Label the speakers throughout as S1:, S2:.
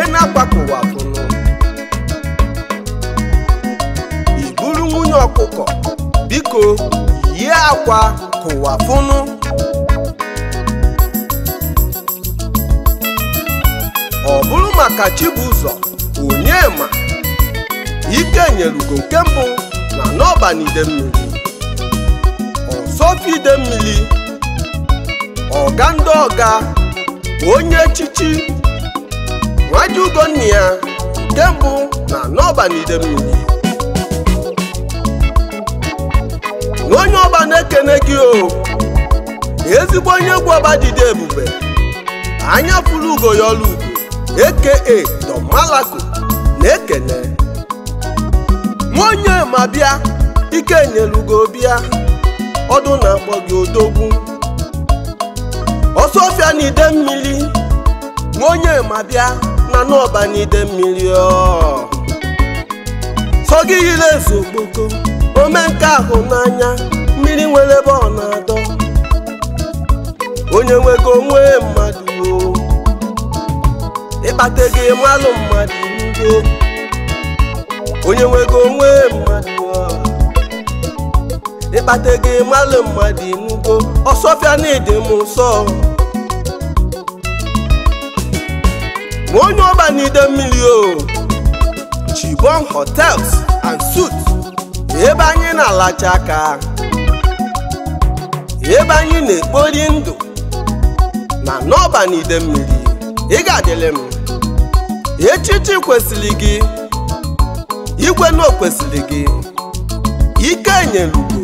S1: nke na-akwakụwapụnụ ị bụrụ nwunye ọkụkọ biko yie akwa kụwapụnụ ọ bụrụ maka Chibuzọ Onyema ike nyerugo nke mbụ na n'ọbanide mmiri ọsọfọ ide mmiri ọga ndị ọga onye echichi nwaji ugonne ya nke na n'ọba na na onye ọba na-ekene gị o ezigbo onye egwu ọba ebube anya fụrụ ugo ya ọlụ ugo aka Don na-ekene nwa onye ma bịa ike nyelugo bịa ọdụ na-akpọ gị odogwu ọsọ ọfịa na ide mmiri nwa onye ma bịa mmanụ ọbanide mmiri sogi yiri ezu okpoko ome nke ahụ n'anya mmiri nwere ebe ọ na-adọ onye nwego onwe mmadụ ịkpata ego ịmalụ mmadụ ndo onye nwego onwe mmadụ ịkpata ego ịmalụ mmadụ ndo ọsọfịa na ịdị m nsọ onye ọba n'ide mmiri o Chibon hotels and suites ebe anyị na-alacha aka ebe anyị na-ekpori ndụ na n'ọba n'ide mmiri ị ga adịlị m echichi kwesịrị gị igwe na okwesịrị gị ike nyelugo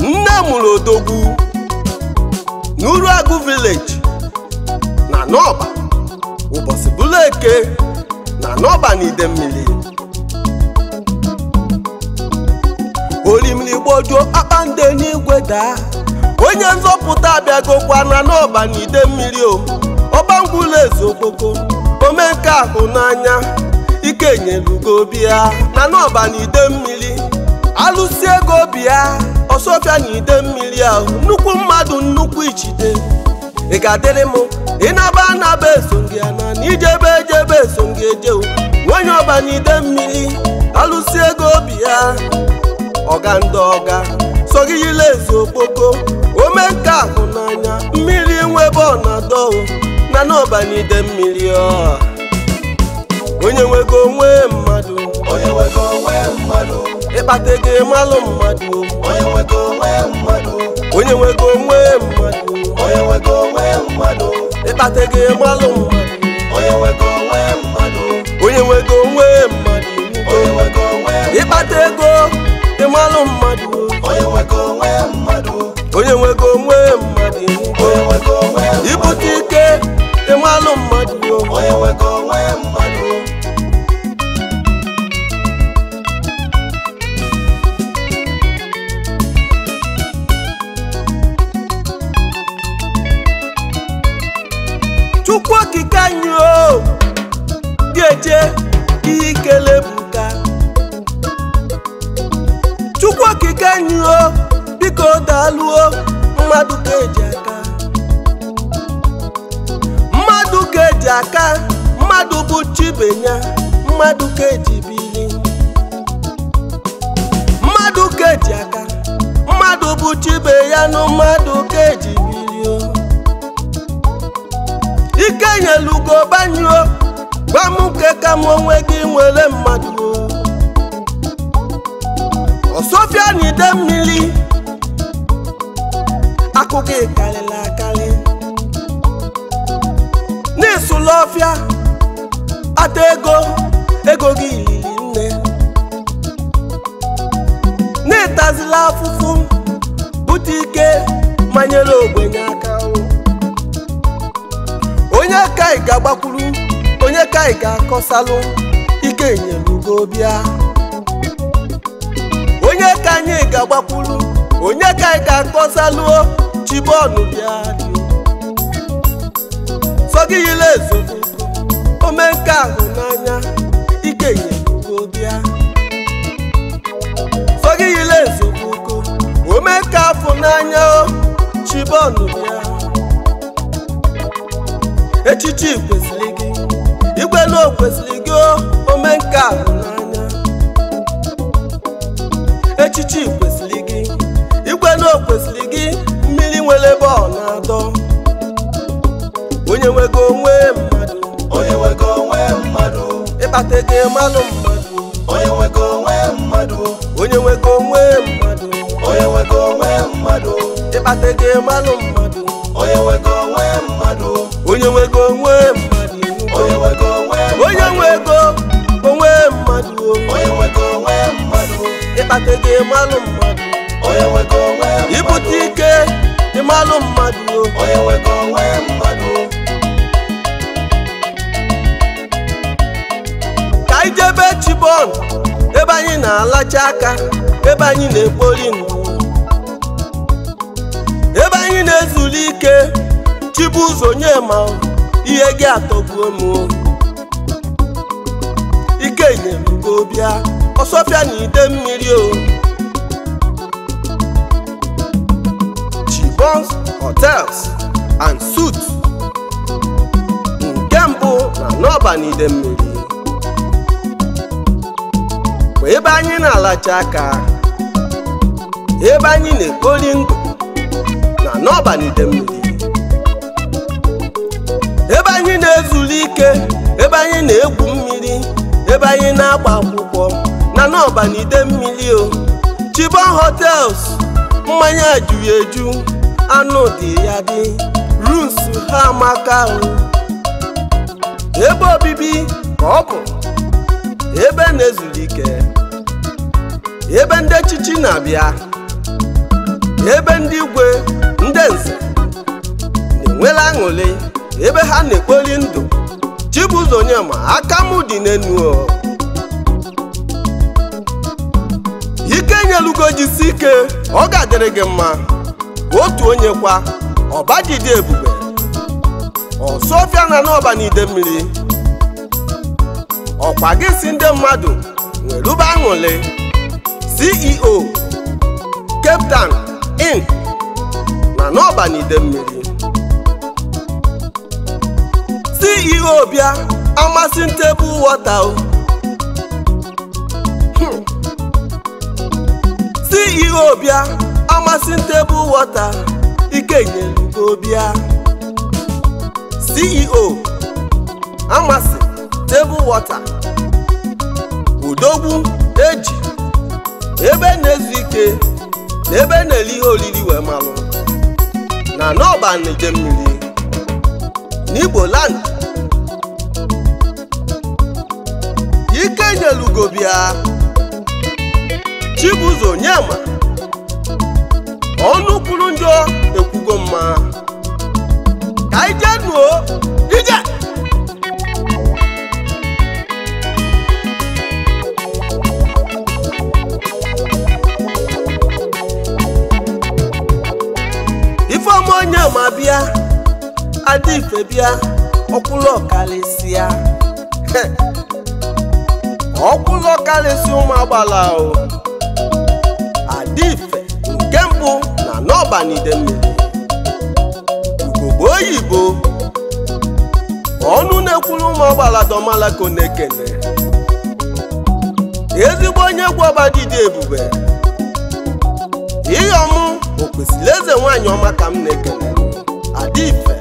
S1: nne mụrụ odogwu n'Uruagụ village na n'ọba ụbọchị bụla eke na n'ọba na ide mmiri olimiri gbojuo nde n'igwe daa onye nzọpụta abịagokwa na n'ọba na ide mmiri o ọbangwula eze okpoko ome ahụ n'anya ike nyelugo obi ya na n'ọba na ide mmiri alụsi ego obi ya ọsọfịa na ide mmiri ahụ nnukwu mmadụ nnukwu ijide. ị ga-adịrị m ịnaba anaba eso gị na ijebe ejebe eso gị ejewu nwanyị ọbanyide mmiri alụsi ego obi ya ọga ndị ọga so gị yila ezu okpoko ome nke ahụ n'anya mmiri nwebe ọnado na na ọbanyide mmiri ọ onye nwego onwe mmadụ onye nwego onwe mmadụ ịkpata ego ịmalụ mmadụ onye nwego onwe mmadụ onye nwego onwe mmadụ onye nwego mmadụ ịkpata ego ịmalụ mmadụ onye nwego onwe mmadụ onye nwego onwe mmadụ onye nwego ịkpata ego ịmalụ mmadụ onye nwego onwe mmadụ onye nwego onwe mmadụ onye nwego onwe ibute ike ịmalụ mmadụ onye nwego onwe mmadụ dịka o daalụo mmadụ ka eji aka mmadụ ka eji aka mmadụ bụ chibenya mmadụ ka eji bili mmadụ ka e aka mmadụ bụ chibe ya na mmadụ ka eji bili ike nyelugo banyuo gwa m nke ka m onwe gị nwere mmadụ osofia na mmiri akụkọ ịkarịla akarị na-esula ọfịa ata ego ego gị ilili nne n'ịtazila etazila afụfụ bute ike manyere ogbenye aka onye ka ị ga-agbakwuru onye ka ị ga-akọsalụ ike nyelugo bịa onye ka anyị ga-agbakwuru onye ka ị ga-akọsalụ chibọọlụ bịa sọgiyila ezogo omenka ahụ n'anya ike nyelugo bịa sọgiyila ezogo omenka afọ n'anya o chibọọlụ bịa echichi kwesịrị gị igwe na o kwesịrị gị omenka ahụ n'anya echichi nwere bọọlụ atọ onye nwego onwe mmadụ onye nwego onwe mmadụ ịkpata ego mmanụ mmadụ onye nwego onwe mmadụ onye nwego onwe mmadụ onye nwego onwe mmadụ ịkpata ego mmanụ mmadụ onye nwego onwe mmadụ onye nwego onwe mmadụ onye nwego onwe onye nwego onwe mmadụ onye nwego onwe mmadụ ịkpata ego mmanụ mmadụ onye nwego onwe mmadụ ibute ike alụ mmadụ onye nwekọ onwe mmadụ ka anyị jebe chibon ebe anyị na-alacha aka ebe anyị na-ekpori ndụ ebe anyị na-ezuli ike chibu ụzọ ma ihe gị atọgbuo m ike nyere gị ọbịa ọsọfịa na ide mmiri o restaurants hotels and suits nke mbụ na n'ọba n'idemmiri bụ ebe anyị na-alacha aka ebe anyị na-ekpori ndụ na n'ọba n'idemmiri ebe anyị na-ezuru ike ebe anyị na-egwu mmiri ebe anyị na-agba akwụkwọ na n'ọba n'idemmiri o Chibon hotels mmanya juru anụ dị ya dị runs ha amaka ebe obibi ka ọ bụ ebe na-ezuru ike ebe ndị echichi na-abịa ebe ndị igwe ndị nze na-enwela aṅụrị ebe ha na-ekpoli ndụ Chibuzo Onyeama aka mụ dị n'enu ike nyelugo jisi ike ọ ga-adịrị gị mma otu onye kwa ọbajide ebube ọsọfịa na n'ọba n'ide mmiri ọkwa gị si ndị mmadụ nwerube aṅụle CEO Cape Town na n'ọba n'ide mmiri CEO bịa amasị ntebụl wọta hmm. CEO bịa Amasị tebụl wọta ike nyelugo e CEO amasị tebụl wọta udogbu eji ebe na-ezu ike na ebe na-ele ihe oriri wee malụ na n'ọba mmiri n'Igbo land ike nyelugo bịa Chibuzo Onyema ọnụkwuru njọ ekwugo mma ka anyị jee nuo ije ifeọma onye ma bịa adịfe bịa ọkwụlụ ọkalịsịa ọkwụlụ ọkalịsị ụmụ agbala o adịfe nke mbụ n'ọba n'ọbanidemmiri ugogbo oyibo ọnụ na-ekwuru ụmụ ọgbaladomalako na-ekene ezigbo onye egwu ọbadidi ebube ihe ọmụ okwesịrị eze nwanyị ọma ka m na-ekene adife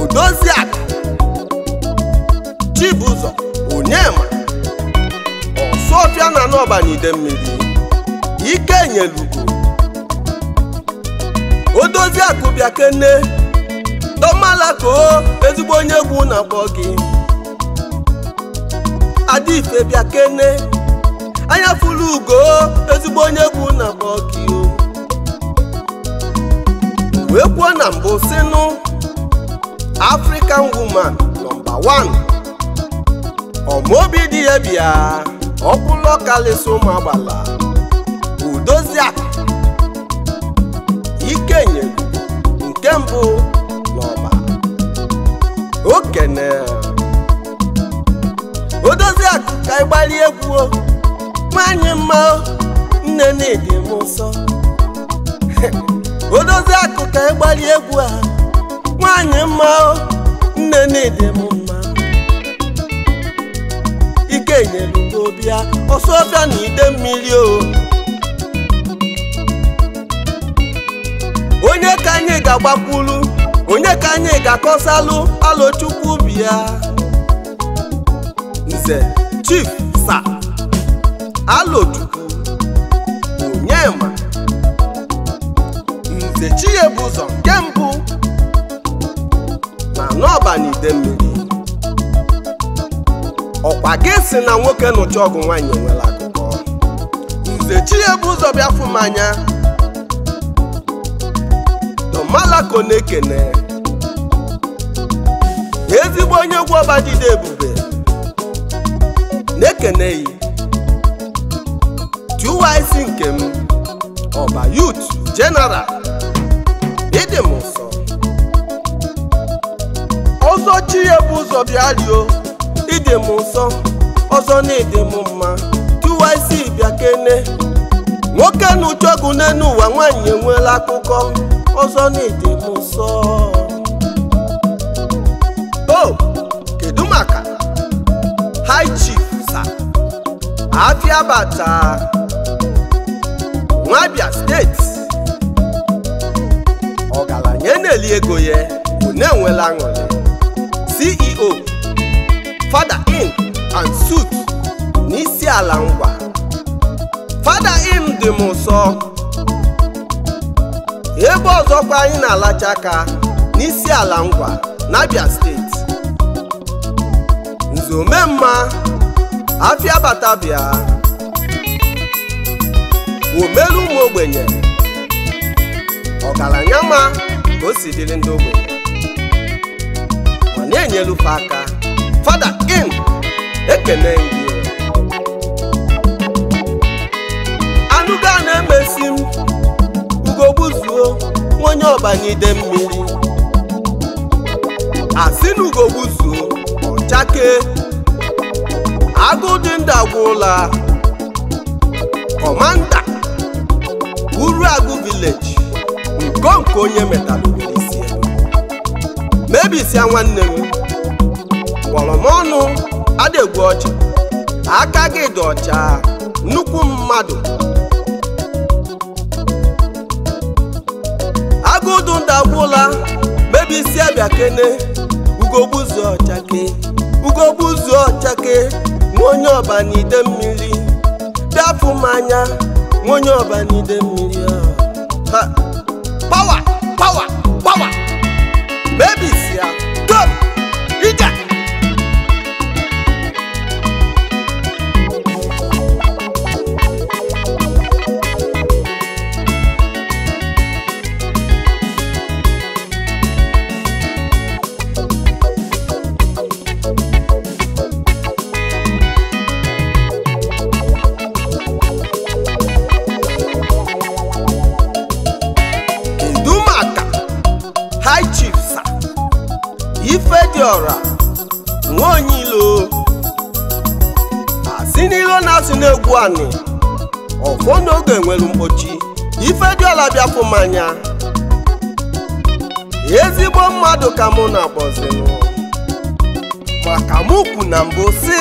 S1: odoziaka chibụzọ onyema ọsụọfịa na n'ọbanidemmiri ike nyelugo Chidozie Akụbịa Kene Domalakoo ezigbo onye egwu na-akpọ gị Adife bịa Kene anya fụlụ ugo ezigbo onye egwu na-akpọ gị wee kwuo na mbụ sinu African woman nọmba 1 ọmaobi dị ya bịa ọkpụlọkalisomgbala Udozie mbụ n'ọba okene odozi akụ ka ịgbali egwu nwanyị mma nne na-ede m nsọ odozi akụ ka ịgbali egwu a nwanyị mma nne na-ede m mma ike nyere obi a ọsọ ọbịa na ide mmiri o onye ka anyị ga-agbakwulu onye ka anyị ga-akọsalụ alochukwu ubi ya nze chief sa onye ma nze ụzọ nke mbụ na n'ọbanide mmiri ọkwa gị si na nwoke nụcha ọgụ nwaanyị nwere akụkọ nze chinyebuzọ bịa fụ anya malako na-ekene ezigbo onye egwu ọba dịda ebube na-ekene yi TYC nke m ọba yut general ịdị m ọzọ chi ya bụ ụzọ bịa rio ịdị m ọzọ na ịdị m mma TYC bịa kene nwoke na ucheọgụ n'elu ụwa nwaanyị enweela akụkọ ọzọ na-ede m nsọ o kedu maka haichi, chief sa nwabia steeti ọgaranya na-eli ego ya bụ na-enwela aṅụrị ceo fada in and sut n'isi ala ngwa fada dị m ụsọ ebe ọzọkwa anyị na-alacha aka n'isi ala ngwa n'Abia steeti nzomemma afịa batabịa omelu ụmụ ogbenye ọgaranya ma ka o si dịrị ndị ogbenye ọ na-enyelufe aka fada in ekene na emesi m ugogbuzuo onye ọbanide mmiri asị na ugogbuzuo ọchake agụ dị ndụ agwụla kọmanda agụ vileji nke onye metalụisi mebisia nwanne m kpọrọ m ọnụ adịgwu ọcha aka gị dị ọcha nnukwu mmadụ Chukwudu ndagwụla mebisi abịa kene ugogbuzu ọchake ugogbuzu ọchake nwa onye ọba n'ide mmiri bịafụ m anya nwa onye ọba n'ide mmiri ha pawa pawa pawa mebisi ya high chiefs ifediora nwaonyilo asi n'ilo na-asụ n'egwu anị ọfọ n'oge nwere mkpochi ifediora bịafụ mmanya ezigbo mmadụ ka mụ na-akpọzinụ maka mụ kwu na mbụ si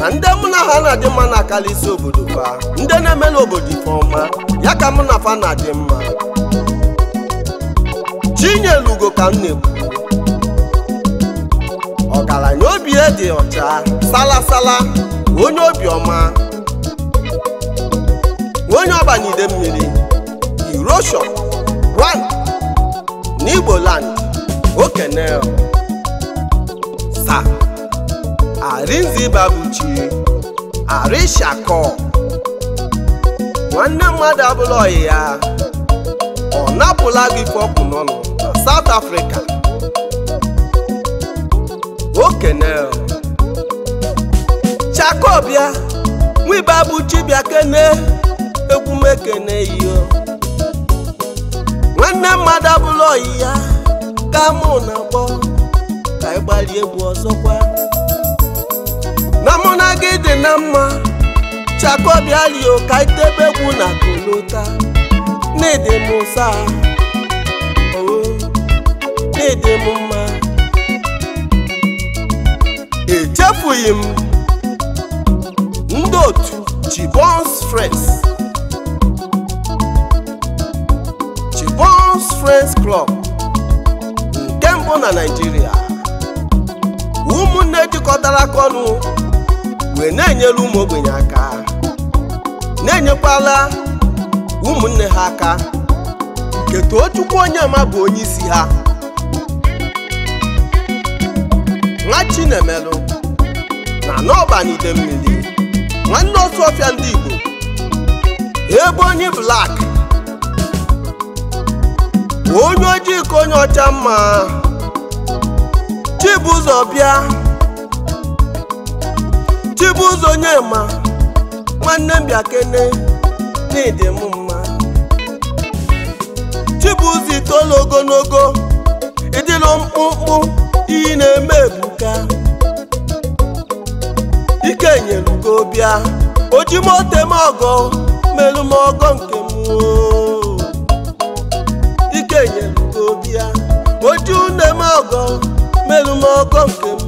S1: na ndị mụ na ha na-adị mma na-akarịsị obodo fa ndị na-eme n'obodo ọma ya ka mụ na fa na-adị mma Chinyelugo ka m ọgaranya obi e dị ọcha salasala onye obiọma onye ọbanyide mmiri Erosion one n'Igboland okene sa arinzibabuchi arishako nwanne mmadụ abụla ọyị ya ọ napụla gị ife n'ọnụ South Africa Okenel Chakobia nwiba bụ chibia kene egwumekene iyo nwanne mmadụ abụla oyi ya ka mụ na akpọ ka ị egwu ọzọkwa na mụ na gị dị na mma Chakobia lio ka itebe egwu na kolota na m ụsa dị m mma echefughị m ndị otu Chibon's frens Chibon's Club nke mbụ na Naịjirịa ụmụnne jikọtara aka ọnụ wee na-enyere ụmụ ogbenye aka na-enyekwala ụmụnne ha aka nke too Chukwu onye ama bụ onye isi ha nwa chinemelụ na n'ọbanide mmiri nwanne otu ọfịa ndị Igbo ebe onye blak onye ojii ka onye ọcha mma ụzọ bịa onye Onyema nwanne mbiakene bịa kene n'ịdị m mma Chibuzo itoolu ogologo ịdịlụ mkpụmkpụ ị na-eme ebuka ike nyelugo bịa oji motem ọgọ melu m ọgọ nke m ike nyelugo bịa oji une m ọgọ melu m ọgọ nke m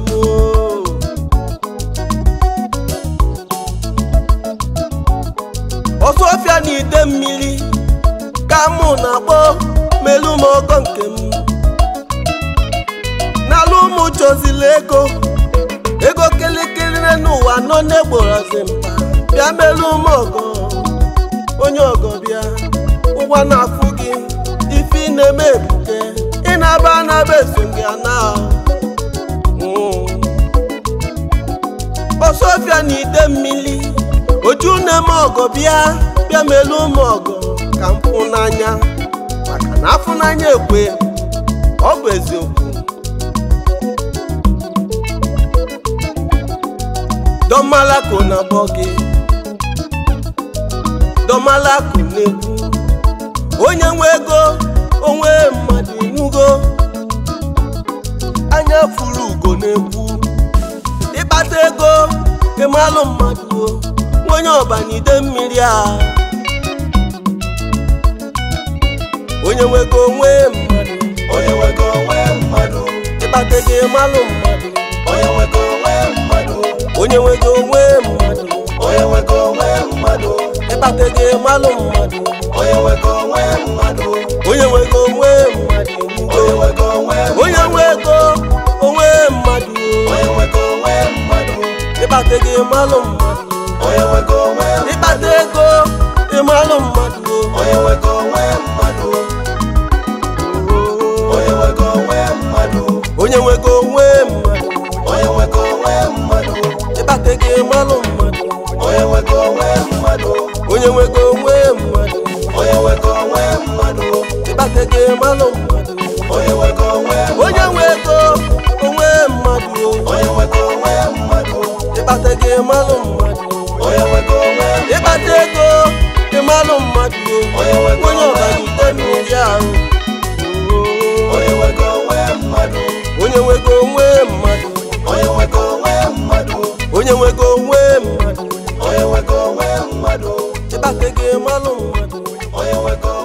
S1: ọsọ ọfịa na ide mmiri ka mụ na-akpọ melu m ọgọ nke m ọkala ụmụ chozili ego ego kilikili n'ụwa nọ n'egborozi mkpa bịa melu ụmụ ọgọ onye ọgọ bịa ụgwọ na-afụ gị ife ị na-eme ebuke ị na-aba anaba na gị ana hmm. ọsọfịa na ide mmiri oju na-eme ọgọ bịa bịa melu ụmụ ọgọ ka mfụnanya n'anya maka na afụnanya ekwe ọ bụ eziokwu Domalako na-akpọ gị na-ekwu onye nwe ego onwe mmadụ inugo anya furu ugo na-ekwu ịkpata ego ịmalụ mmadụ onye ọbanide mmiri a onye nwe ego onwe mmadụ onye nwego onwe mmadụ ịkpata ego ịmalụ mmadụ onye nwego onwe mmadụ onye nwego onwe mmadụ onye nwego onwe mmadụ ịkpata ego malụ mmadụ onye nwego onwe mmadụ onye nwego onwe mmadụ onye nwego onwe mmadụ onye nwego onwe mmadụ ịkpata ego malụ mmadụ onye nwego onwe mmadụ ịkpata ego ịmalụ mmadụ onye nwego onwe mmadụ onye nwego onwe mmadụ onye nwego onwe mmadụ ịkpata gị mmanụ mmadụ onye nwego onwe onye nwego onwe mmadụ onye nwego onwe mmadụ ịkpata gị mmanụ mmadụ onye nwego onwe ego ịmanụ mmadụ onye nwego onye mmiri ahụ onye nwego onwe mmadụ onye nwego onwe mmadụ onye nwego onwe mmadụ onye nwego onwe ete gị malụ mmadụ onye nwekọ